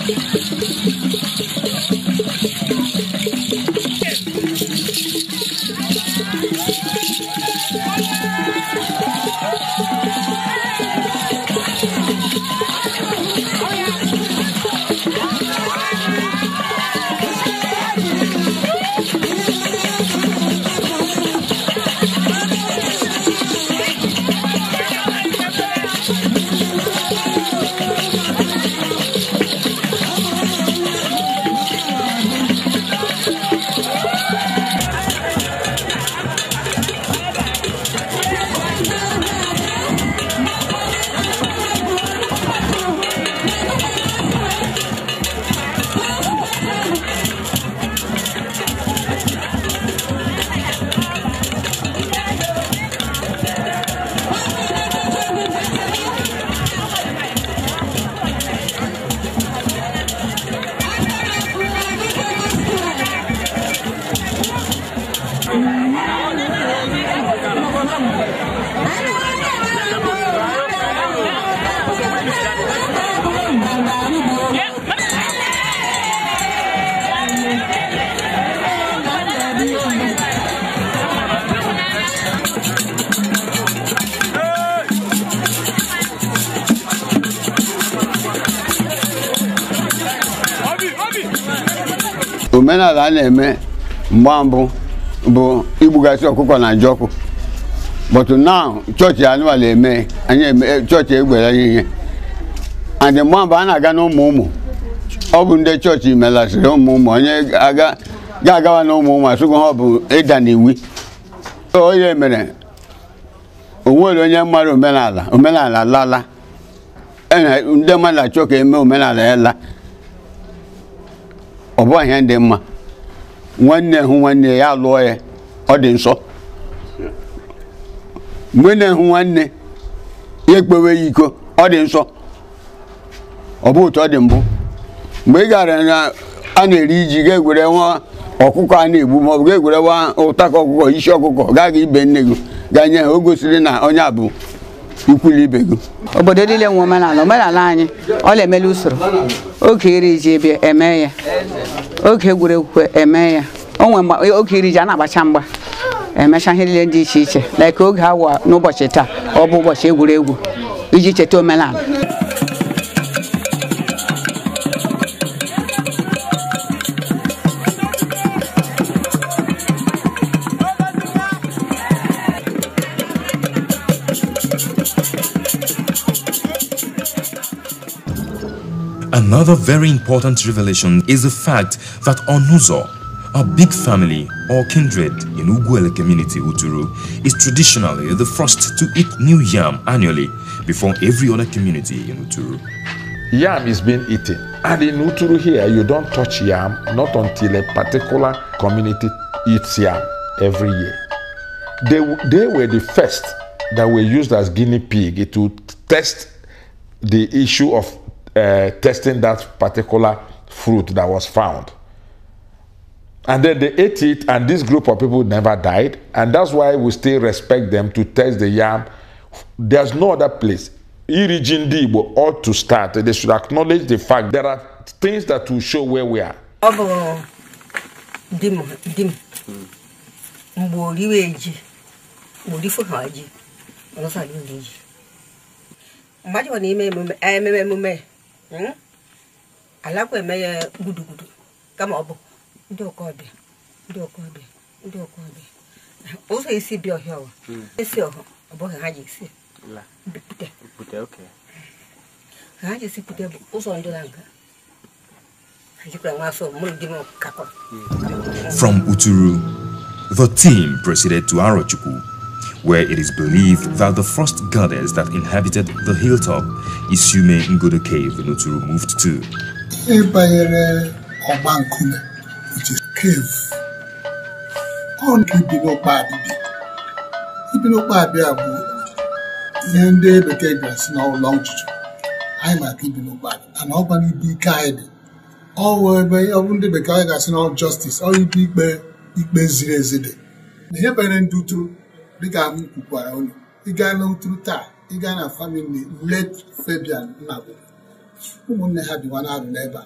Thank you.
omenala a na-eme mgba mbụ bụ igbugasị ọkụkọ na jọkụ ọkụ but now chọọchị anụmanụ eme anyị eh, chọọchị egwere anyị ihe and mgba mbụ a na-aga n'ụmụ ụmụ ọ bụ ndị chọọchị melasịrị ụmụ ụmụ onye ga-agawa na ụmụ ụmụ asụgụ ha ọ bụ ịda n'iwi onye mere onwere onye mmadụ omenala omenala lala e ndị mmadụ achọ ka eme omenala ya la ọ bụ ihe mma nwanne hụ nwanne ya lụọ ya ọ dị nsọ mgbe na-ehụ nwanne ya ekpewe ya iko ọ dị nsọ ọ bụ otu ọ dị mbụ mgbe ị gara na a na-eri iji ga-egwere nwa ọkụkọ a na-egbu ma ọ bụ ga-egwere nwa ụtaka ọkụkọ isi ọkụkọ gaa gị ibe nne gị gaa nye ha o gosiri na onye a bụ ikwuli ibe gị
obodo niile nwe omenala omenala anyị ọ na-emela usoro oge iri ji ebe eme ya oge egwuregwu eme ya onwe oge iri ji a na-agbacha mgba emecha ihe niile dị iche iche like oge awa n'ụbọchị taa ọ bụ ụbọchị egwuregwu iji cheta omenala
Another very important revelation is the fact that Onuzo, a big family or kindred in Uguele community Uturu, is traditionally the first to eat new yam annually before every other community in Uturu. Yam is
being eaten. And in Uturu here, you don't touch yam not until a particular community eats yam every year. They, they were the first that were used as guinea pig to test the issue of uh, testing that particular fruit that was found. And then they ate it, and this group of people never died. And that's why we still respect them to test the yam. There's no other place. Irigin Igbo ought to start. They should acknowledge the fact there are things that will show where we are.
dim dim mgbe Hmm? alakwa eme ya gudugudu kama ọ bụ ndị ọkọbịa ndị ọkọbịa ndị ọkọbịa ụzọ esi bịa ọhịa ọwa hmm. esi ọhụ ọ bụghị ha ji esi ha ji esi bụ ụzọ ndị na aga
hmm. From Uturu, the team proceeded to Arochukwu where it is believed that the first goddess that inhabited the hilltop, Isume Ngodo Cave, Noturu moved to.
Obankume, which is cave. On Ibinokpabi. Ibinokpabi abu ihe ndị bekee gasị na ụlọ be anyị maka Ibinokpabi and ọkwana ibe ike be dị be ebe ọ bụ ndị bekee be gasị na justice ọ ikpe ikpe ikpe ziri ezi dị na ihe banyere dịka m kwukwara ụlọ ịga n'ụtụrụ taa ịga na famili let Fabian Nnagwu ụmụnne ha bịwa na-arụ n'ebe a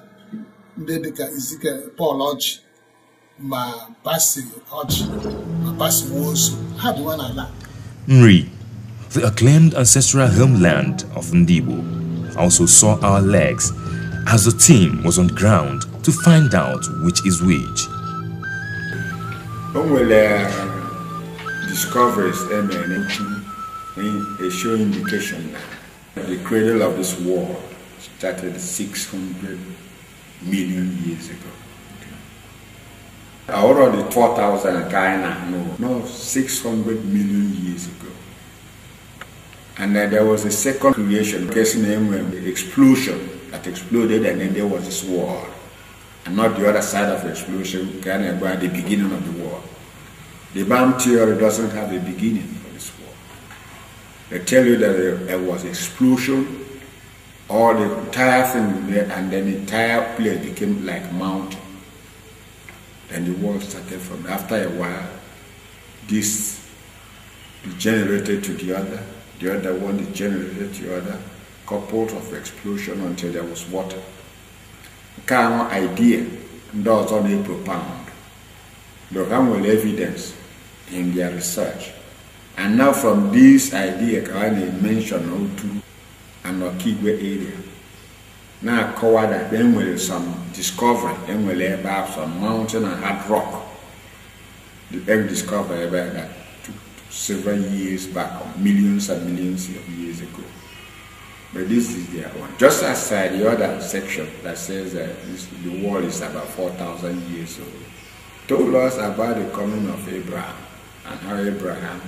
ndị dịka Izike Paul Ọjị ma
Basi Ọjị ma Basi Nwosu ha bịwa n'ala
the acclaimed ancestral homeland of Ndibo, also saw our legs as the team was on ground to find out which is which
discoveries a show indication the cradle of this war started 600 million years ago. Okay. Already 4,000 Ghana, no, no, 600 million years ago. And then there was a second creation, guess name, the explosion that exploded, and then there was this war. And not the other side of the explosion, Ghana, by the beginning of the war. The bomb theory doesn't have a beginning for this war. They tell you that there, was explosion, all the entire thing, and then the entire place became like mountain. Then the war started from after a while. This degenerated to the other, the other one degenerated to the other, couple of explosion until there was water. Nke a idea does only ọzọ na-epropound. The i evidence in their research. And now from this idea ka ọ to an Okigwe area na-akọwa that enwere some discovery enwere ebe about some mountain and hard rock the discovery ebe that took several years back millions and millions of years ago. But this is their one. Just aside the other section that says that this, the world is about 4,000 years old, told us about the coming of Abraham. And how Abraham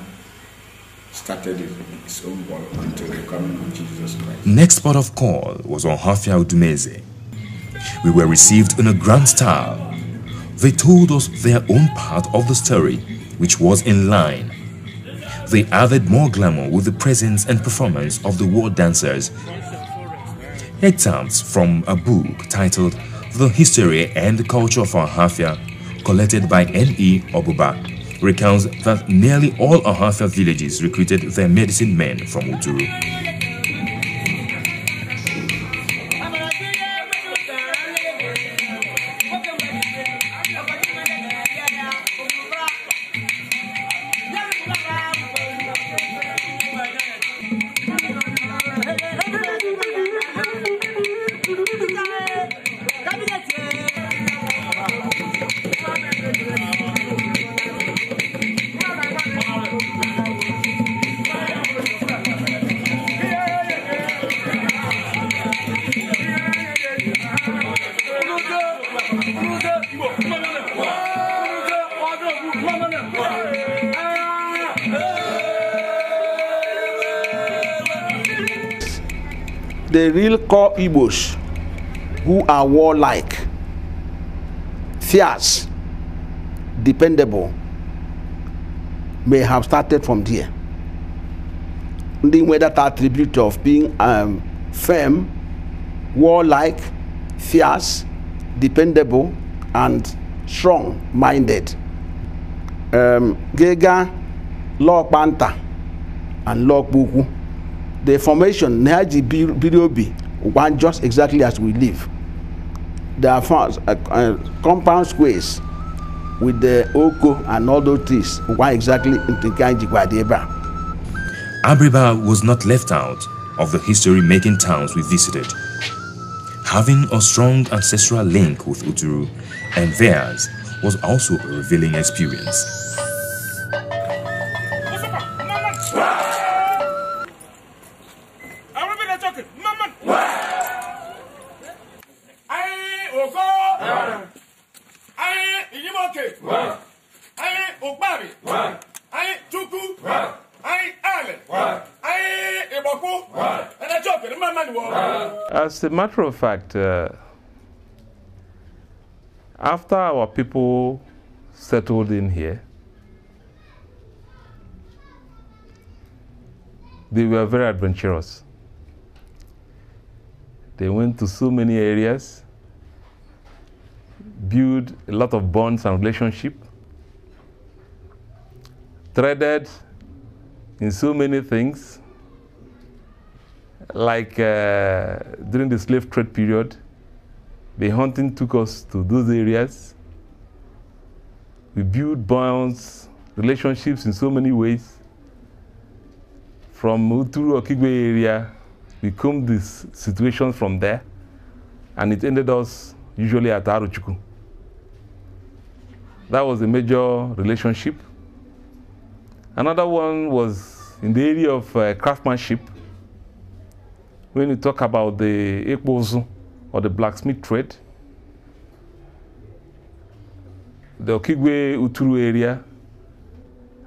started his own work until the coming of Jesus Christ.
Next part of call was on Hafia Udumeze. We were received in a grand style. They told us their own part of the story, which was in line. They added more glamour with the presence and performance of the war dancers. Excerpts from a book titled The History and Culture of Hafia, collected by N.E. Obuba recounts that nearly all Ahasa villages recruited their medicine men from Uturu.
Igbos who are warlike, fierce,
dependable may have started from there. They were that attribute of being um, firm, warlike,
fierce, dependable, and strong minded. Um, Gega, Lok Banta, and Lok
Buku. The formation Naji Birobi one just exactly as we live.
There are farms, uh, uh, compound squares with the oko and all those trees, one exactly in Tinkanjikwadeba.
Abriba was not left out of the history-making towns we visited. Having a strong ancestral link with Uturu and theirs was also a revealing experience.
as a matter of fact, uh, after our people settled in here, they were very adventurous. They went to so many areas, built a lot of bonds and relationship, threaded in so many things, like uh, during the slave trade period, the hunting took us to those areas. We built bonds, relationships in so many ways. From Uturu Okigwe area, we combed this situation from there, and it ended us usually at Aruchuku. That was a major relationship. Another one was in the area of uh, craftsmanship when you talk about the ekpozu or the blacksmith trade, the Okigwe Uturu area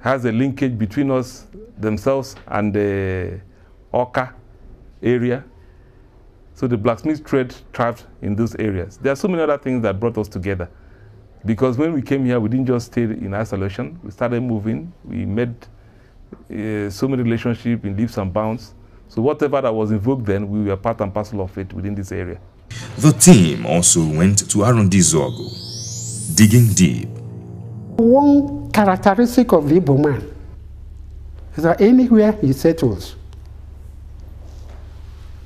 has a linkage between us themselves and the Oka area. So the blacksmith trade thrived in those areas. There are so many other things that brought us together. Because when we came here, we didn't just stay in isolation. We started moving. We made uh, so many relationships in leaps and bounds. So whatever that was invoked then, we were part and parcel of it within this area.
The team also went to Arundi Zogo, digging deep.
One characteristic of the Igbo man is that anywhere he settles,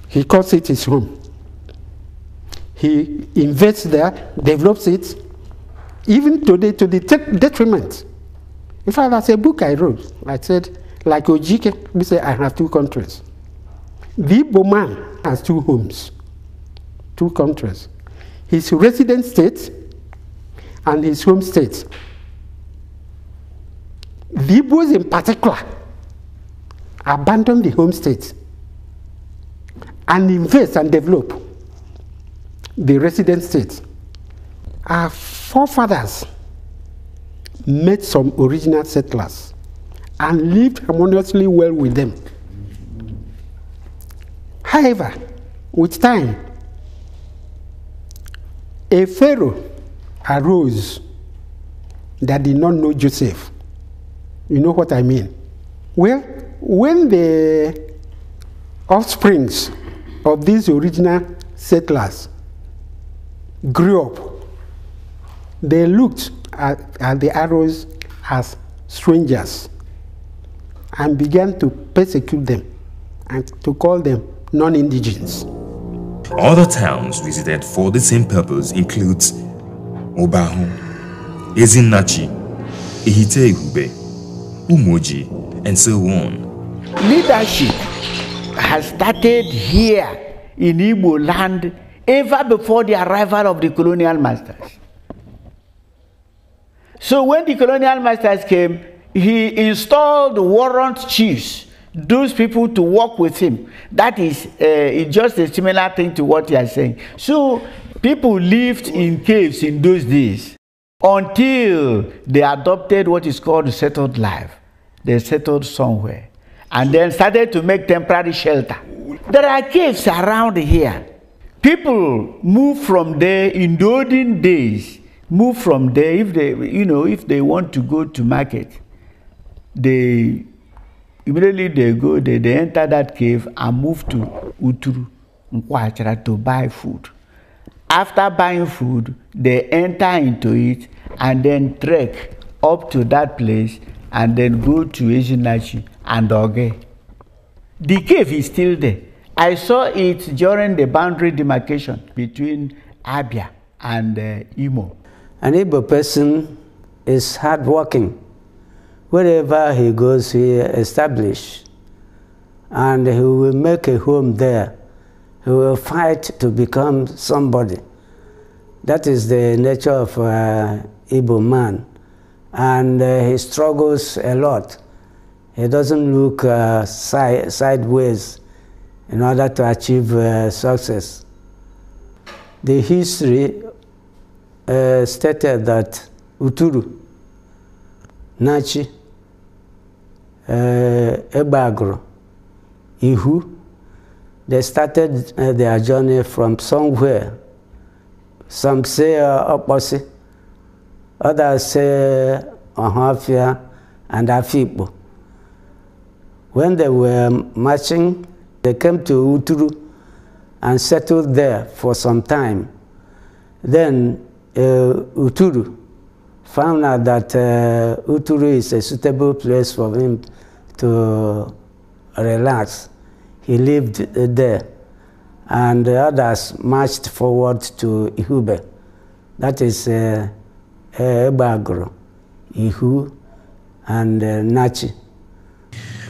he calls it his home. He invests there, develops it, even today to the detriment. In fact, that's a book I wrote. I said, like Ojike, we say, I have two countries. The Igbo man has two homes, two countries. His resident state and his home state. The Igbos in particular abandon the home state and invest and develop the resident state. Our forefathers met some original settlers and lived harmoniously well with them. However, with time, a Pharaoh arose that did not know Joseph. You know what I mean? Well, when the offsprings of these original settlers grew up, they looked at, at the arrows as strangers and began to persecute them and to call them non-indigens.
Other towns visited for the same purpose include Obahu, Ezinachi, Ihiteihube, Umoji, and so on.
Leadership has started here in Igbo land ever before the arrival of the colonial masters. So when the colonial masters came, he installed warrant chiefs those people to work with him. That is uh, just a similar thing to what you are saying. So people lived in caves in those days until they adopted what is called settled life. They settled somewhere and then started to make temporary shelter. There are caves around here. People move from there in the olden days, move from there if they, you know, if they want to go to market. They immediately they go they, they enter that cave and move to uturu nkwachara to buy food after buying food they enter into it and then trek up to that place and then go to Ejinachi and Oge. The cave is still there. I saw it during the boundary demarcation between Abia and uh, Imo.
An Igbo person is hardworking. wherever he goes, he establishes, and he will make a home there. He will fight to become somebody. That is the nature of uh, Igbo man, and uh, he struggles a lot. He doesn't look uh, si sideways in order to achieve uh, success. The history uh, stated that Uturu, Nachi, Ebagro, eh, Ihu, they started eh, their journey from somewhere. Some say uh, eh, Oposi, others say Ahafia and Afipo. When they were marching, they came to Uturu and settled there for some time. Then uh, Uturu found out that uh, Uturu is a suitable place for him to relax. He lived uh, there. And the others marched forward to Ihube. That is uh, Ebagro, Ihu, and uh, Nachi.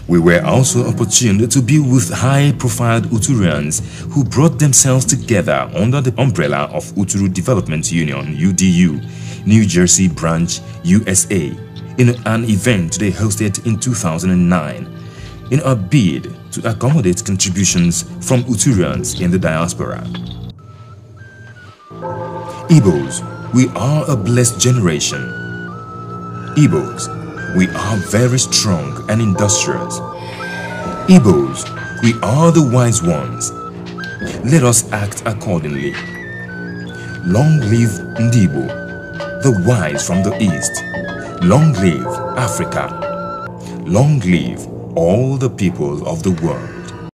We were also opportuned to be with high-profile Uturians who brought themselves together under the umbrella of Uturu Development Union, UDU, New Jersey Branch, USA, in an event they hosted in 2009 in a bid to accommodate contributions from Uturians in the diaspora. Igbos, we are a blessed generation. Igbos, we are very strong and industrious. Igbos, we are the wise ones. Let us act accordingly. Long live Ndibo, the wise from the east. Long live Africa. Long live all the peoples of the
world.